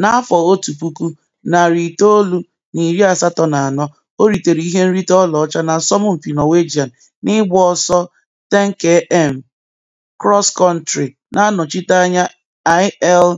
N'afọ otu puku, narị itoolu na iri asatọ na anọ, o ritere ihe nrite ọlaọcha Asọmpi Norwegian n'ịgba ọsọ 10km cross-country, na-anọchite anya IL